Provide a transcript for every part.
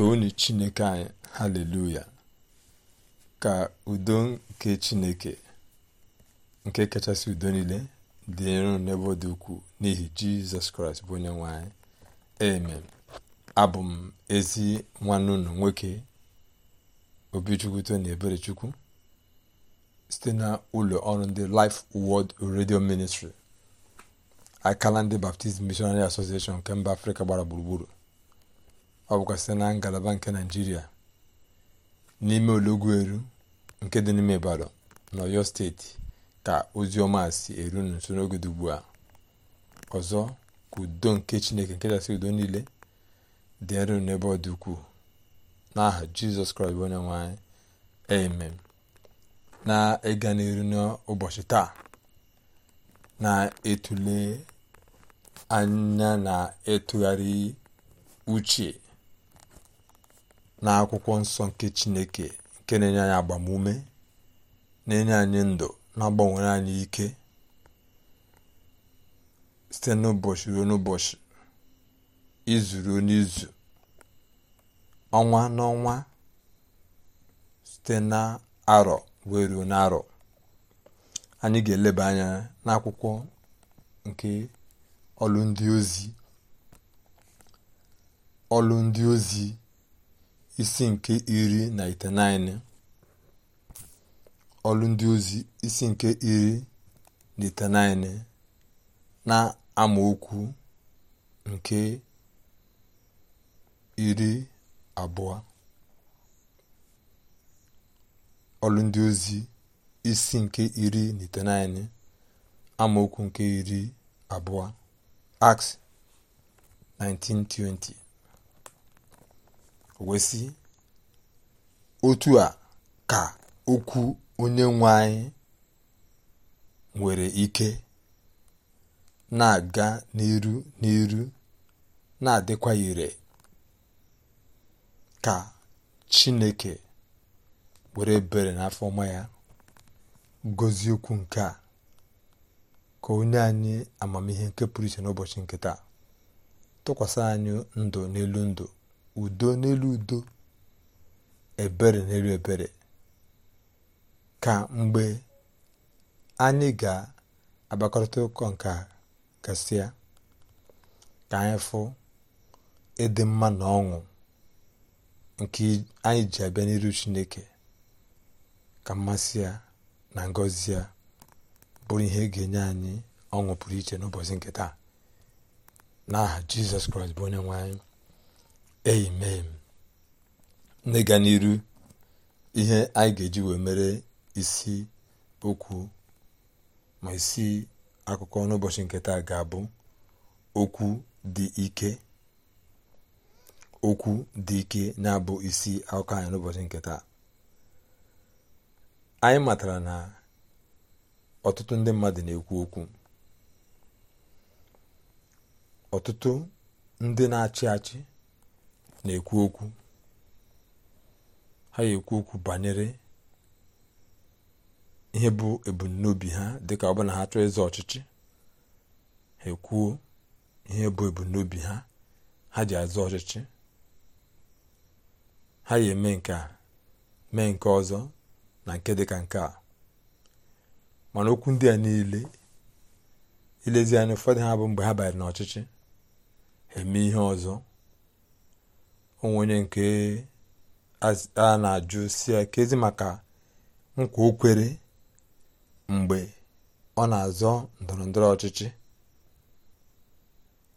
toonu chineke anyị haleluya ka udo nke chineke nke kachasị udo niile dị nro n'ebe dị ukwuu n'ihi jizọs kraịst bụ onye nwanyị amen abụ m ezi nwanne unu nwoke obichukwuto na eberechukwu site na ụlọ ọrụ ndị Life wod redio Ministry akala ndị Baptist Missionary Association nke mba Afrịka gbara gburugburu ọ bụkwasị na ngalaba nke naijiria n'ime eru nke dị n'ime ibadan na steeti ka ozi ọma si eru n'usoro n'oge dị ugbu a ọzọ ka udo nke chineke nke kachasị udo niile dị dịrị n'ebe ọ dị ukwuu n'aha jizọs kraịst bụ onye nwe anyị amen na ịga n'iru n'ụbọchị taa na-etule anya na ịtụgharị uche na akwụkwọ nsọ nke chineke nke na-enye anyị agbamume na-enye anyị ndụ na-agbanwere anyị ike site n'ụbọchị ruo n'ụbọchị izu ruo n'izu ọnwa n'ọnwa site n'arọ wee ruo n'arọ anyị ga-eleba anya n'akwụkwọ nke ọlụ ndị ozi ọlụ ndị ozi isi nke iri na itenaine ọlụ ndị ozi isi nke iri na itenaine na amaokwu nke iri abụọ ọlụ ndị ozi isi nke iri na itenaine amaokwu nke iri abụọ Acts 1920 wesị otu a ka okwu onye nwe anyị nwere ike na-aga n'iru n'iru na-adịkwa ire ka chineke were bere n'afọ ọma ya gozie okwu nke a ka onye anyị amamihe nke pụrụ iche n'ụbọchị nkịta taa tụkwasị anyị ndụ n'elu ndụ udo n'elu udo ebere n'elu ebere ka mgbe anyị ga-agbakọrịta ụkọ nke a ka anyị fụ ịdị mma na ọṅụ nke anyị ji abịa n'iru chineke ka mmasị ya na ngọzi ya bụrụ ihe ga-enye anyị ọṅụ pụrụ iche n'ụbọchị nke taa n'aha jizọs kraịst bụ onye nwe anyị amen n'ịga n'iru ihe anyị ga-eji wee mere isi okwu ma isi akụkọ n'ụbọchị nke taa ga-abụ okwu dị ike okwu dị ike na-abụ isi akụkọ anyị n'ụbọchị nke taa anyị matara na ọtụtụ ndị mmadụ na-ekwu okwu ọtụtụ ndị na-achị achị na-ekwu okwu ha ga-ekwu okwu banyere ihe bụ ebumnobi ha dịka ọ bụ na ha chọọ ịzọ ọchịchị ha ekwuo ihe bụ ebumnobi ha ha ji azọ ọchịchị ha ga-eme nke mee nke ọzọ na nke dịka nke a mana okwu ndị a niile ilezi anya ụfọdụ ha bụ mgbe ha banyere n'ọchịchị ha eme ihe ọzọ onwe onye nke a na-ajụ si kezi maka nkwa okwere mgbe ọ na-azọ ndọrọ ndọrọ ọchịchị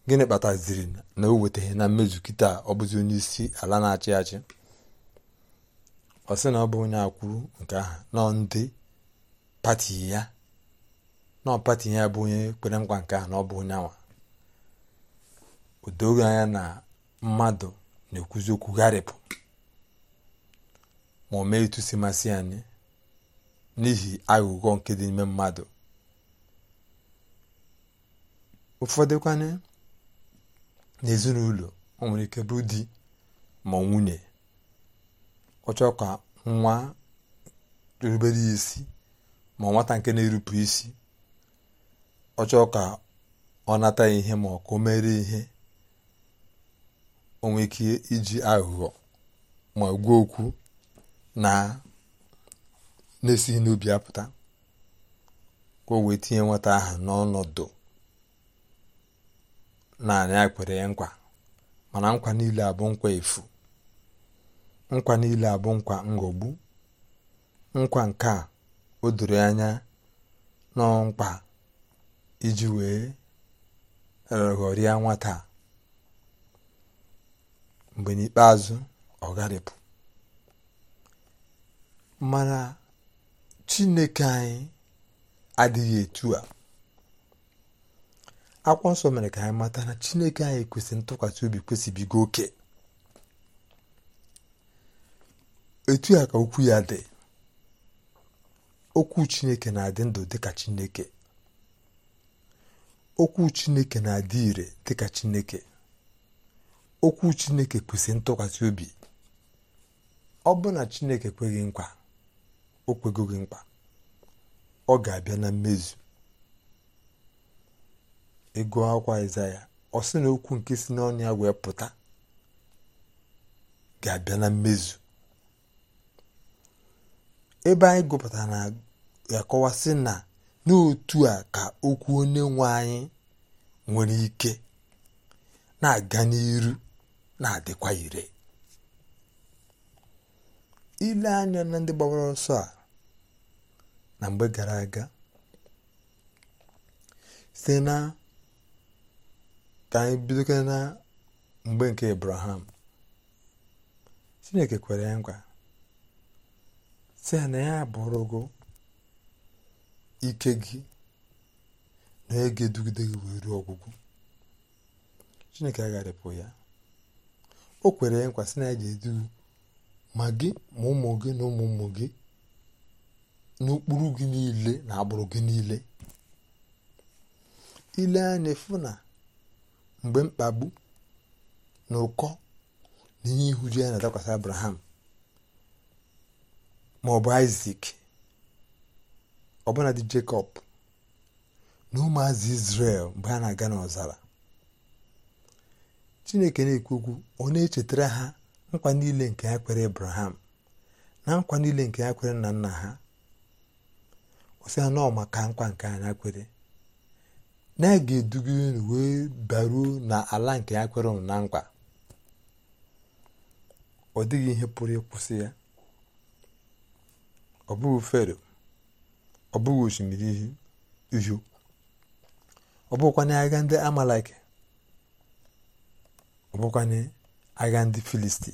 gịnị kpataziri na o weteghị na mmezu kịta ọ onye isi ala na-achị achị ọ sị na ọ bụ onye akwuru nke ahụ nọ ndị pati ya nọ pati ya bụ onye kpere nkwa nke na ọ bụ onye awa anya na mmadụ na-ekwuzi okwu gharịpụ ma o mee etu si masị anyị n'ihi aghụghọ nke dị n'ime mmadụ ụfọdụkwanye n'ezinụlọ o nwere ike bụ di ma nwunye ọ chọọ ka nwa rubere ya isi ma nwata nke na-erupụ isi ọ chọọ ka ọ nata ihe ma ọ ka o mere ihe onwe ike iji aghụghọ ma gwuo okwu na na-esighị n'ubi apụta ka o wee tinye nwata aha n'ọnọdụ naanị a kwere ya nkwa mana nkwa niile abụ nkwa efu nkwa niile abụ nkwa ngogbu nkwa nke a o doro anya nkwa iji wee eh, ghọrịa nwata a mgbe n'ikpeazụ ọ gharịpụ mana chineke anyị adịghị etu a akwụkwọ nsọ mere ka anyị mata na chineke anyị kwesịrị ntụkwasị obi kwesịbigo oke etu a ka okwu ya dị okwu chineke na-adị ndụ dịka chineke okwu chineke na-adị ire dịka chineke okwu chineke kwesịrị ntụkwasị obi ọ bụ na chineke kweghị nkwa o kwegoghị mkpa ọ ga-abịa na mmezu ego akwa ya ọ sị na okwu nke si n'ọnụ ya wee pụta ga-abịa na mmezu ebe anyị gụpụtara na ya kọwasị na n'otu a ka okwu onye nwe anyị nwere ike na-aga n'iru na-adịkwa ire ile anya na ndị gbawara ọsọ a na mgbe gara aga site na ka anyị na mgbe nke Abraham Chineke kwere ya nkwa sị na ya abụrụgụ ike gị na ege dugide gị wee ruo ọgwụgwụ Chineke agharịpụ ya o kwere ya nkwasị na ya ga edu ma gị ma ụmụ gị na ụmụ ụmụ gị n'okpuru gị niile na agbụrụ gị niile ile anya funa na mgbe mkpagbu na ụkọ na ihe ihuju ya na-adakwasị abraham ma ọ bụ isak ọbụna dị jacob na azụ isrel mgbe a na-aga n'ọzara chineke na-ekwu ọ na-echetara ha nkwa niile nke ya kwere abraham na nkwa niile nke ya kwere nna nna ha osi ha nọọ maka nkwa nke anya kwere na a ga-eduga unu wee baruo na ala nke ya kwere na nkwa ọ dịghị ihe pụrụ ịkwụsị ya ọ bụghị fero ọ bụghị osimiri uhie ọ bụghịkwa agha ndị amalike ọ agha ndị filistin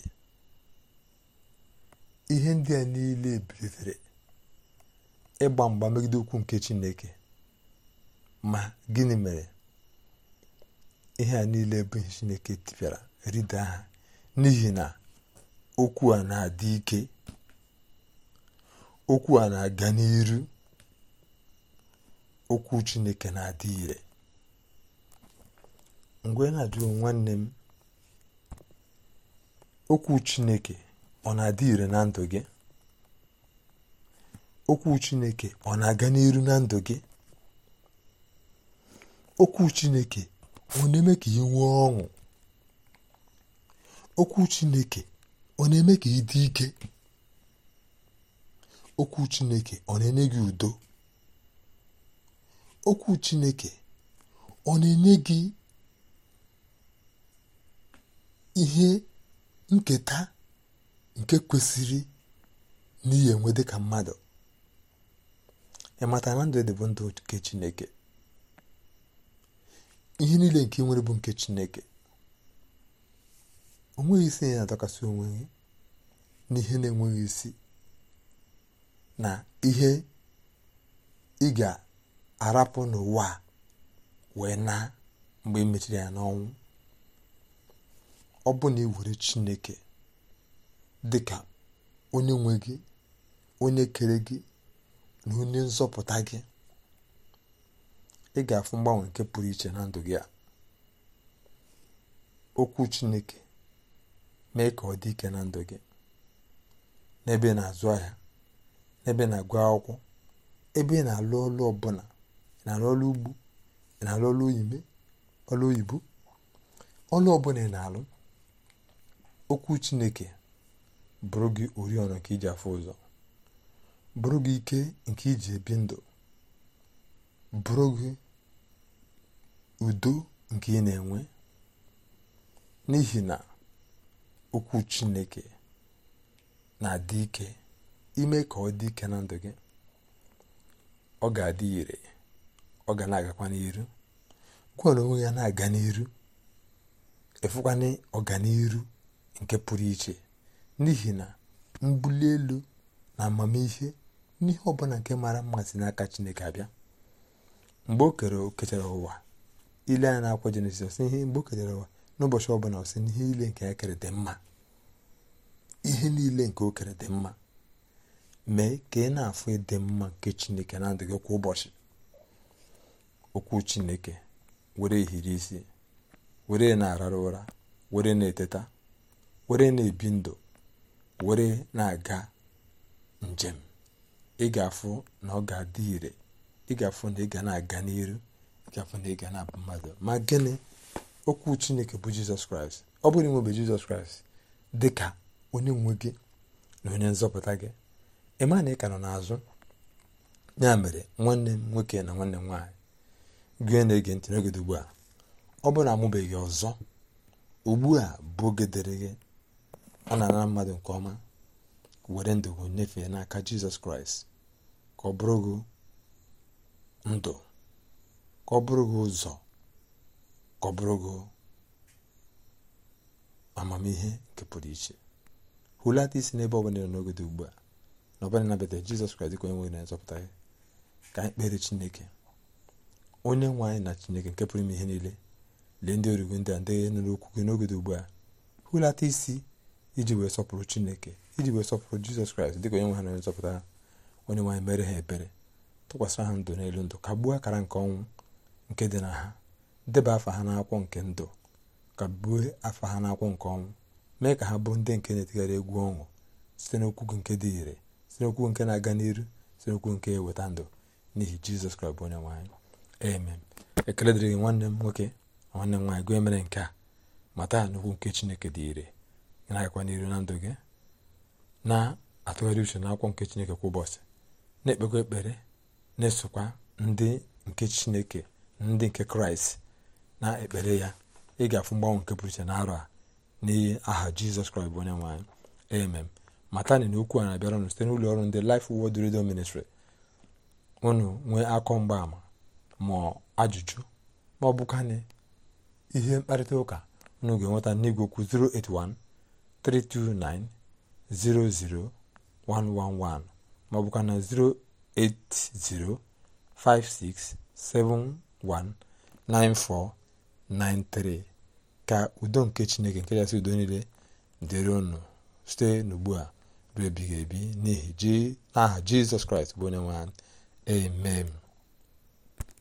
ihe ndị a niile bilitere ịgba mgba megide ukwu nke chineke ma gịnị mere ihe a niile bụ chineke tipịara rida ha n'ihi na okwu a na-adị ike okwu a na-aga n'iru okwu chineke na-adị ire mgbe na adịghị nwanne m okwu chineke ọ na-adị ire na ndụ gị okwu chineke ọ na-aga n'iru na ndụ gị okwu chineke ọ na-eme ka ị nwee ọṅụ okwu chineke ọ na-eme ka ị dị ike okwu chineke ọ na-enye gị udo okwu chineke ọ na-enye gị ihe nketa nke kwesịrị n'ihe enwe dịka mmadụ ịmata na ndụ dị ndụ nke chineke ihe niile nke nwere bụ nke chineke o isi ya na-adọkasị onwe gị n'ihe na-enweghị isi na ihe ị ga-arapụ n'ụwa wee na mgbe e ya n'ọnwụ ọ bụ na iwere chineke dị ka onye nwe gị onye kere gị na onye nzọpụta gị ị ga-afụ mgbanwe nke pụrụ iche na ndụ gị a okwu chineke mee ka ọ dị ike na ndụ gị n'ebe na-azụ ahịa n'ebe na-agụ akwụkwọ ebe ị na-alụ ọlụ ọbụla ị na-alụ ọlụ ugbo ị na-alụ ọlụ ọlụ oyibo ọlụ ọbụla ị na-alụ okwu chineke bụrụ gị oriọna nke iji afọ ụzọ bụrụ gị ike nke iji ebi ndụ bụrụ gị udo nke ị na-enwe n'ihi na okwu chineke na-adị ike ime ka ọ dị ike na ndụ gị ọ ga-adị ire ọ ga na-agakwa n'iru gwara onwe ya na-aga n'iru efukwana ọganiru nke pụrụ iche n'ihi na mbuli elu na amamihe n'ihe ọbụla nke mara mmasị n'aka chineke abịa mgbe o kere o kechara ụwa ile a na-akwa jenesis ọsị ihe mgbe o kechara ụwa n'ụbọchị ọbụla ọsị n'ihe ile nke ya kere dị mma ihe niile nke o kere dị mma mee ka ị na-afụ ịdị mma nke chineke na adịghị gị kwa ụbọchị okwu chineke were ehiri isi were na-arara ụra were na-eteta were na-ebi ndụ were na-aga njem ịgafụ na ọ ga-adị ire ịgafụ na ị ga na-aga n'iru ịgafụ na ị ga na-abụ mmadụ ma gịnị okwu chineke bụ jizọs kraịst ọ bụrụ inwebe jizọs kraịst dị ka onye nwe gị na onye nzọpụta gị ịma na ị ka nọ n'azụ ya mere nwanne m nwoke na nwanne m nwaanyị gị na-ege ntị n'oge ugbu a ọ bụrụ na amụbeghị ọzọ ugbu a bụ oge dịrị gị a na-anara mmadụ nke ọma were ndụ gị nyefee n'aka jizọs kraịst ka ọ bụrụ gị ndụ ka ọ bụrụ gị ụzọ ka ọ bụrụ gị amamihe nke pụrụ iche hụlata isi n'ebe ọ bụla n'oge dị ugbu a na ọbụla nabata jizọs kraịst ka onye nwere na-azọpụta gị ka anyị kpere chineke onye nwe anyị na chineke nke pụrụ ime ihe niile lee ndị origo ndị a ndị nụrụ okwu gị n'oge dị ugbu a hụlata isi iji wee sọpụrụ chineke iji wee sọpụrụ jizọs kraịst dịka onye nwe ha na onye nzọpụta onye nwaanyị mere ha ebere tụkwasịra ha ndụ n'elu ndụ ka gbuo akara nke ọnwụ nke dị na ha deba afa ha n'akwụkwọ nke ndụ ka gbuo afa ha n'akwụkwọ nke ọnwụ mee ka ha bụrụ ndị nke na-etigharị egwu ọnwụ site n'okwu nke dị ire site n'okwu nke na-aga n'iru site n'okwu nke eweta ndụ n'ihi jizọs kraịst bụ onye nwaanyị amen ekele dịrị nwanne m nwoke nwanne m nwaanyị gwa emere nke a mata n'okwu nke chineke dị ire ị na-agakwa n'iru na ndụ gị na-atụgharị uche n'akwụkwọ nke chineke kwa ụbọchị na-ekpekwa ekpere na-esokwa ndị nke chineke ndị nke kraịst na-ekpere ya ị ga-afụ mgbanwe nke pụrụ iche n'arọ a n'ihi aha jizọs kraịst bụ onye nwanyị emem matani na okwu a na-abịara ụnụ site n'ụlọ ọrụ ndị lif Word Radio unu nwee akọ mgbaama ma ajụjụ ma ọ bụkanị ihe mkparịta ụka ụnụ ga-enweta n'igwe okwu 081 329-00111 maọbụkwa na 08056719493 ka udo nke chineke nke kachasị udo niile dịrị ụnụ site n'ugbu a ruo ebighị ebi n'ihi n'aha jizọs kraịst bụ onye nwe amen